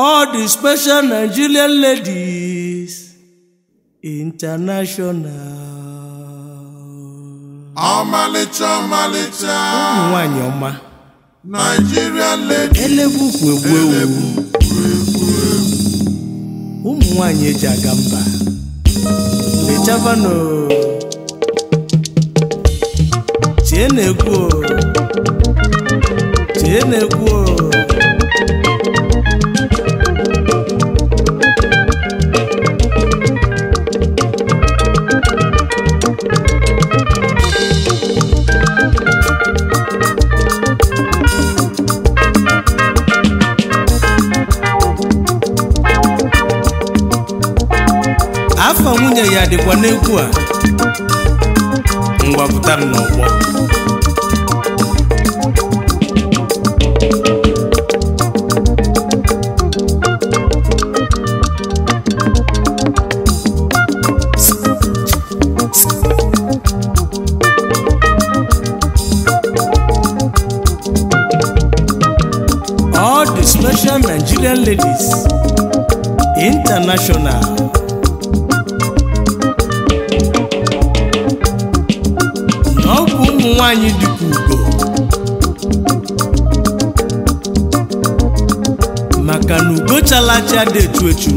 all the special Nigerian ladies international. ọmalịcha ọmalịcha ụmụ nwanyị ọma Nigerian ladies elebu ugwu egwu ewu ụmụ nwanyị eji aga mba lechavano chie na-egwu chie na nwunye ya dịkwa n'egwu a mgbapụtara n'ọgbọ all the special Nigerian ladies international acha dị etu etu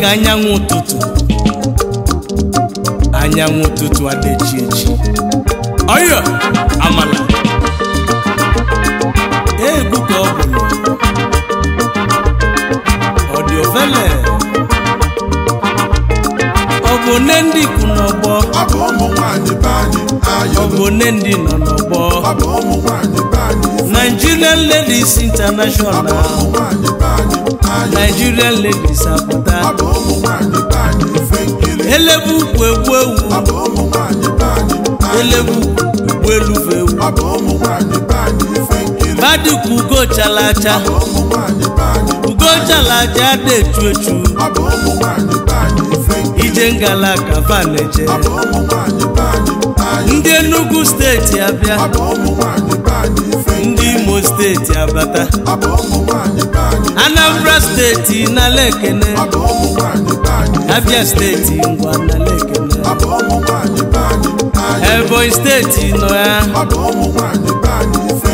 ka anyanwụ ụtụtụ anyanwụ ụtụtụ adịchi echi ọyọ amala egwu ka ọ bụ ọ dị ofele ọ bụ nne ndị kwụ n'ọgbọ ọ bụ ụmụ nwaanyị be anyị ọ bụ nne ndị nọ n'ọgbọ Nigerian Ladies International Nigerian Ladies Abuja elebu kwu egwu ewu elebu kwu elufe ewu badikwu ugo chalacha ugo chalacha dị echu Ijengala ije ngala ndị Enugu steeti abịa ndị Imo steeti abata Anambra steeti na lekene Abia steeti ngwa na lekene Ebonyi steeti nọ ya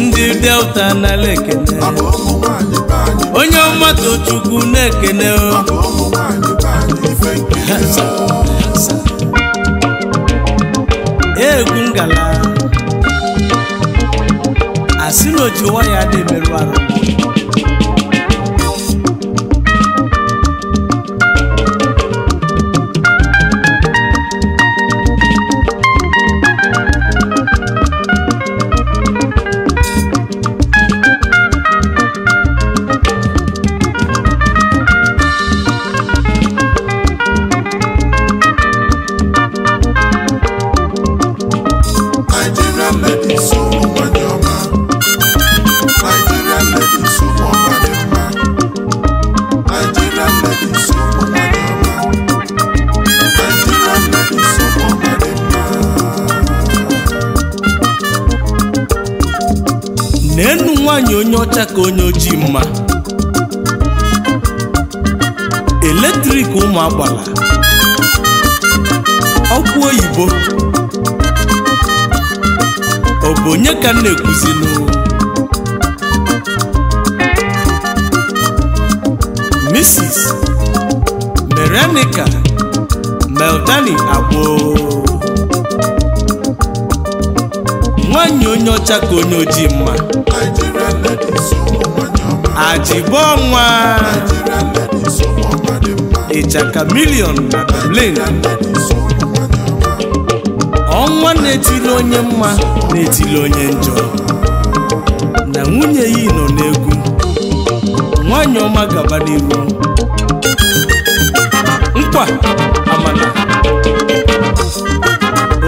ndị Delta na lekene onye ọmatochukwu na-ekene o egwu ngala asị na oji waya dị merụ arụ nwaanyị onye ọcha ka onye ojii mma eletrik ụmụ agbala ọkụ oyibo ọ bụ onye ka m na-ekwuzinụ misis Merenica Meldani Agbo nwaanyị onye ọcha ka onye ojii mma ajibonwa ịchaka milion na ọnwa na-etili onye mma na-etili onye njọ na nwunye ya nọ n'egwu nwanyị ọma gaba n'ihu nkwa amana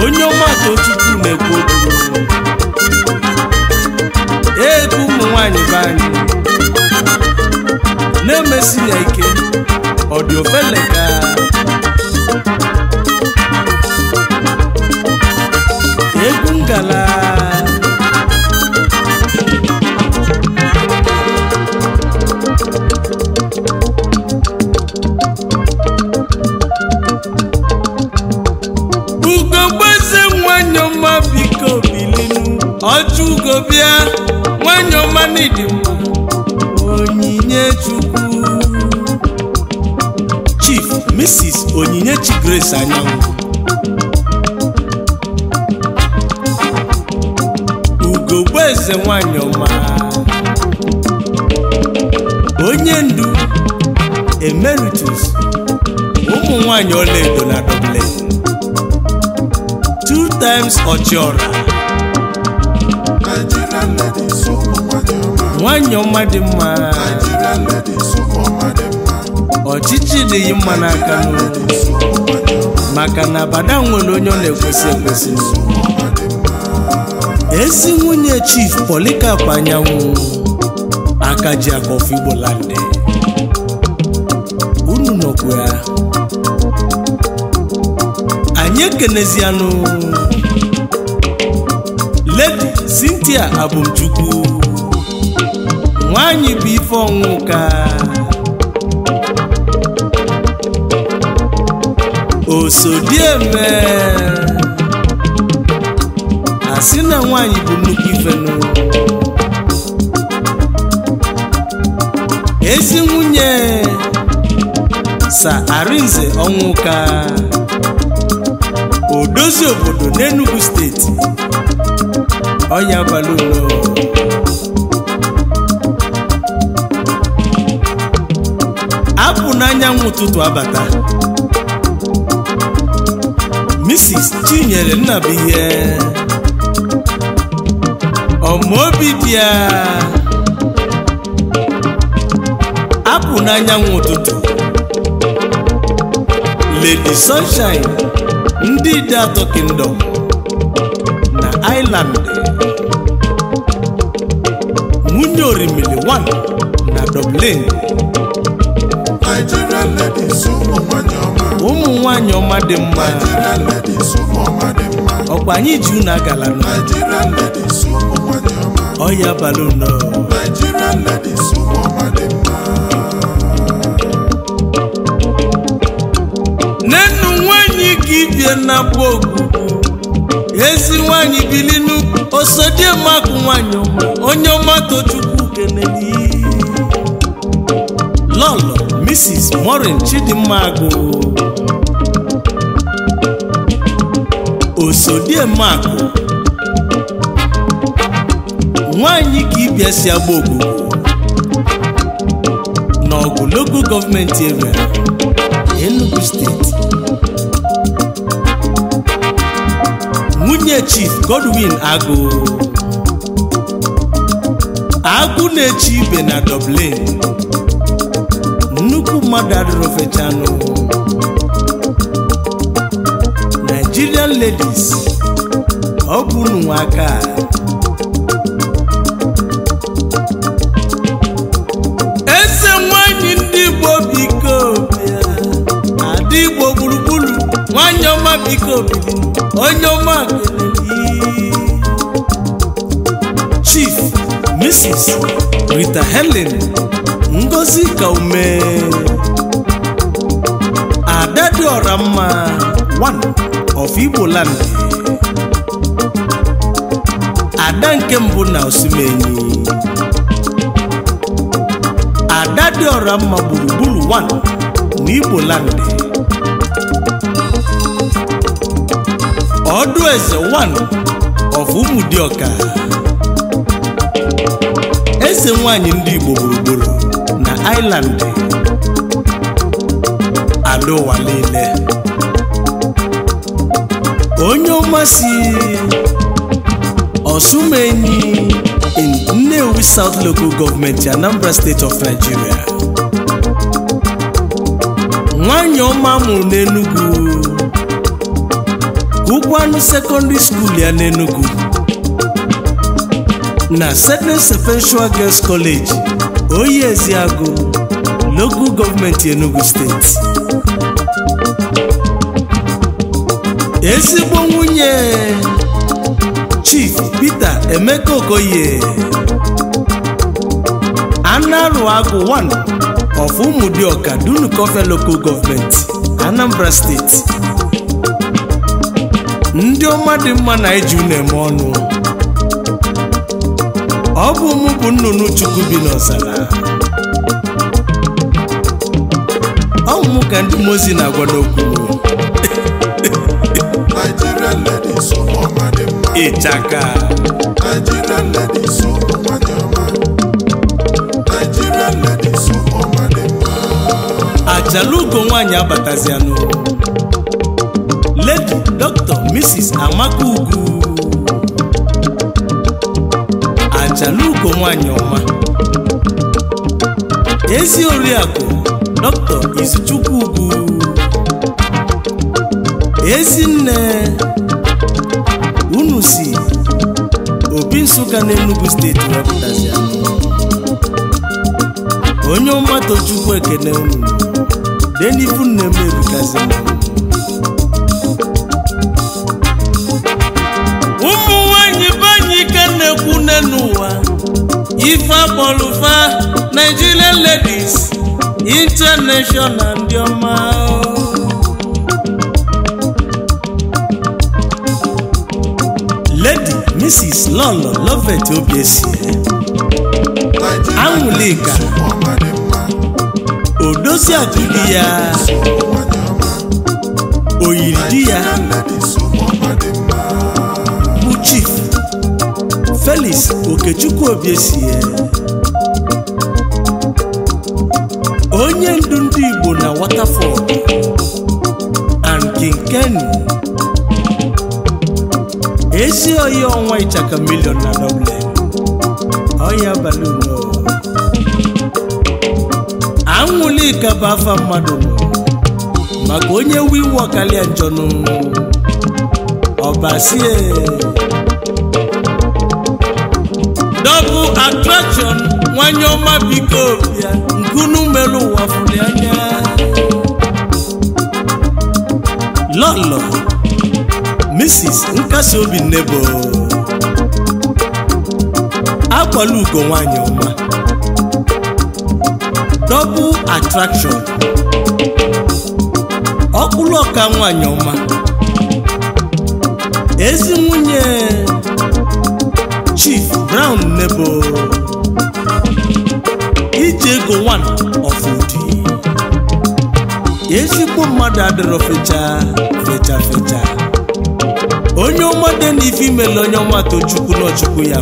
onye ọma tochukwu na-ekwu Tracy Eke Ọ̀dìọ́fẹ́lẹ̀ka. Eégún gàlà. ugogbeze nwanyị ọma biko bilinu ọjọ ugo bịa nwanyị ọma n'ịdị mma onyinye chukwu 26 Onyinyechi Grace Anyanwụ eze nwanyị ọma onye ndu emeritus ụmụ nwanyị ọlaedo na doble two times ọchịọra nwanyị ọma dị mma ọchịchị na-eyi mma n'aka n'olu maka na abada nwere onye ọ na-ekwesị ekwesị ezi nwunye chief polikap anyanwụ aka ji akọfọ Igbo unu nọkwa ya anyị ekenezianụ Lady Cynthia Abumchukwu nwanyị bụ ife ọnwụ ka osodieme eme na nwanyị bụ nnukwu ifenu ezi nwunye sa arinze ọnwụka odozi obodo n'Enugu steeti ọnya abalị ulo apụ n'anyanwụ ụtụtụ abata Mrs. Chinyere Nnabuihe ọmaobi dị ya apụ n'anyanwụ ụtụtụ Lady Sunshine ndị dị atọ kingdom na iland nwunye orimili 1 na Dublin nwaanyị ọma dị mma ọkwa anyị ji unu agala ọya balụnọ nnennu nwaanyị gị bie na gba ogbu ezi nwaanyị bilinu osodiemakụ nwaanyị ọma onye ọma tochukwu kenedi lọlọ Mrs. Morin Chidimma agụ osodiemakụ nwanyị ka ịbịa si agba ogbugbo n'ọgụ local gọọmenti area Enugu steeti nwunye chief Godwin Agụ agụ na-eche ibe na Dublin nnukwu mmadụ adịrofechanụ Nigerian ladies ọ bụ aka eze nwanyị ndị Igbo biko ada Igbo gburugburu nwanyị ọma biko onye ọma Chief Mrs. Rita Helen Ngozi Kaume Ada mma of Igbo land ada nke mbụ na Osimiri ada dị ọra mma gburugburu 1 na Igbo land ọdụ eze 1 of Ụmụdịọka eze nwanyị ndị Igbo gburugburu na Island ada niile onye ọmasị Osumenyi in Nnewi South Local Government Anambra State of Nigeria nwanyị ọma mụrụ n'Enugu Ugwuanụ Secondary School ya n'Enugu na Seven Sequential Girls College ezi Agụ Local Government Enugu State ezigbo nwunye Chief Peter Emeka Okoye agụ 1 of Umudiọka Dunukọfe Local Government Anambra Steeti. ndị ọma dị mma na-eji unu eme ọnụ ọ bụ mụ bụ nnụnụ Chukwu bi n'ọzara ọ bụ mụ ka ndị mozi na-agwa n'okwu ịchaka ajalugo nwanyị abatazianụ ledi dr mrs amaka ugwu ajalugo nwanyị ọma ezi oriakụ dr izuchukwu ugwu ezi nne si, obi Nsụka na steeti wepụtazia onye ọmatụ Chukwu ekene unu denibu nne m ebukazi ụmụ nwanyị banyị ka na-ekwu nne n'ụwa ife akpọrụfa Nigerian ladies international ndị ọma Mrs. Lolo Lovet Obiesie Anwụlika odozi di ya oyiri di ya bụ chief Felix Okechukwu Obiesie onye ndu ndị Igbo na Waterford and King Kenny ezi oyi ọnwa ịchaka milion na nọble ọya baluno anwụli ka bụ afa mmadụ maka onye wiwo karịa njọnụ ọbasie double attraction nwanyị ọma biko ya nkunu melu ụwa fụrụ anya lọlọ Mrs. nkasi Nebo nnebo akwala ugo nwanyị ọma double attraction ọkpụrụ ọka nwanyị ọma ezi nwunye Chief Brown Nebo Ije ego one of ezigbo mmadụ adịrọ fecha fecha fecha onye ọma dị na ife onye ọma tochukwu na ọchukwu ya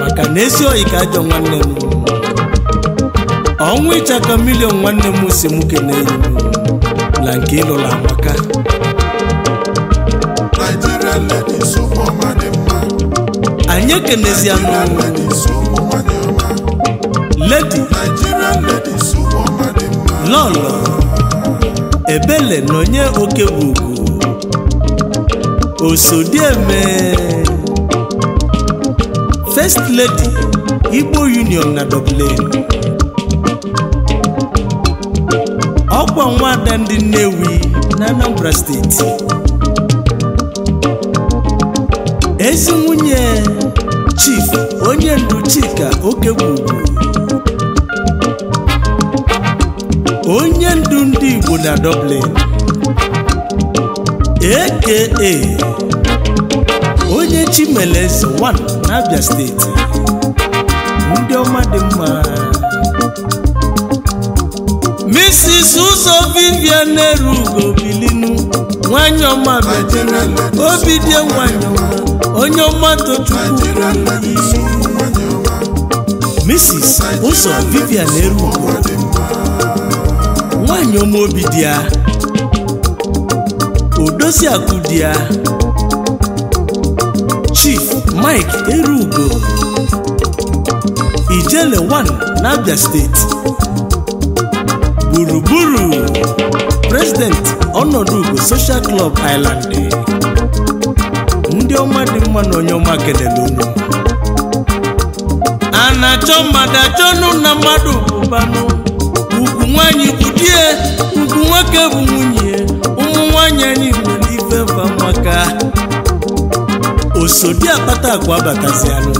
maka na esi oyi ka ajọ nwanne m ọnwụ ịchaka milion nwanne m si m kene enyi na nke ịlụla maka anyị anụ. ledi lọlọ ebele na onye oke bụ Osodieme First Lady Igbo Union na Dublin ọkwa nwada ndị Nnewi na Anambra steeti ezi nwunye Chief onye ndu Chika Okegbu onye ndu ndị Igbo na Dublin aka onye chimele eze one n'abia steeti ndị ọma dị mma Mrs. Ụzọ Vivian Nnerugo bilinu nwanyị ọma betena obi dị nwanyị ọma onye ọma tochukwu Mrs. Ụzọ Vivian Nnerugo nwanyị ọma obi dị ya akụ ya Chief Mike Erugo Ijele 1 n'Abia steeti gburugburu President ọnọdụ Ugo Social Club Island ndị ọma dị mma na onye ọma kelere unu a na-achọ mmadụ achọ nụ na mmadụ bụbanụ ugwu nwanyị bụ di e, ugwu nwoke bụ nwunye ụmụ nwanyị anyị nwere ife maka osodi akpata akwa batazialụ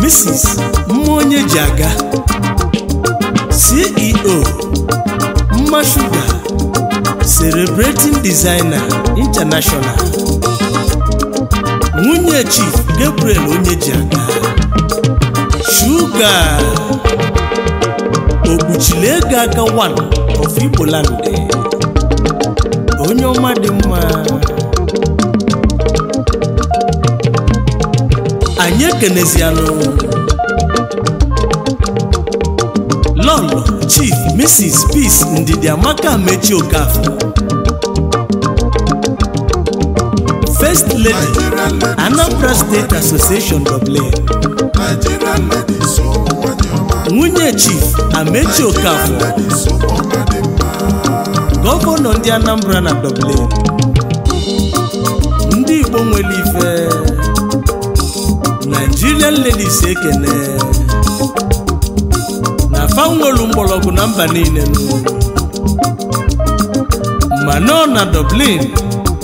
Mrs. mma onye ji aga CEO mma shuga celebrating designer international nwunye chief Gabriel onye ji aga shuga okpuchile ego aka one of Igboland onye ọma dị mma anyị ekenezianụ lọlụ chief mrs peace ndidiamaka mechi okafor first lady anambra state association dublin nwunye chief amechi okafor gọvanọ ndị anambra na dublin ndị igbo nwere ife irie nlelise ekene na fanwelu mgbọrọgwụ na mba niile ma nọ na Dublin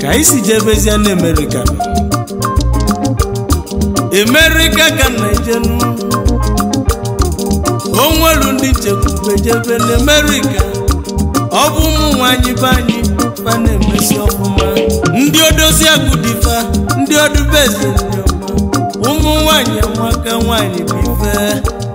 ka isi si jee bezie na America America ka naijenu onwelu ndị chekwubejebe na America ọ bụ ụmụ nwanyị be anyị fa na-emesi ọfụma ndị odozi agụ dịfa ndị odubeze ụmụ nwanyị nwaka nwanyị bụ ife